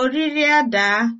oriri adaa